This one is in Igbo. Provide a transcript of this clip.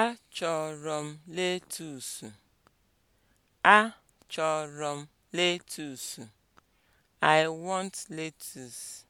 Achọrọ m letusu. Achọrọ m letus. I want lettuce.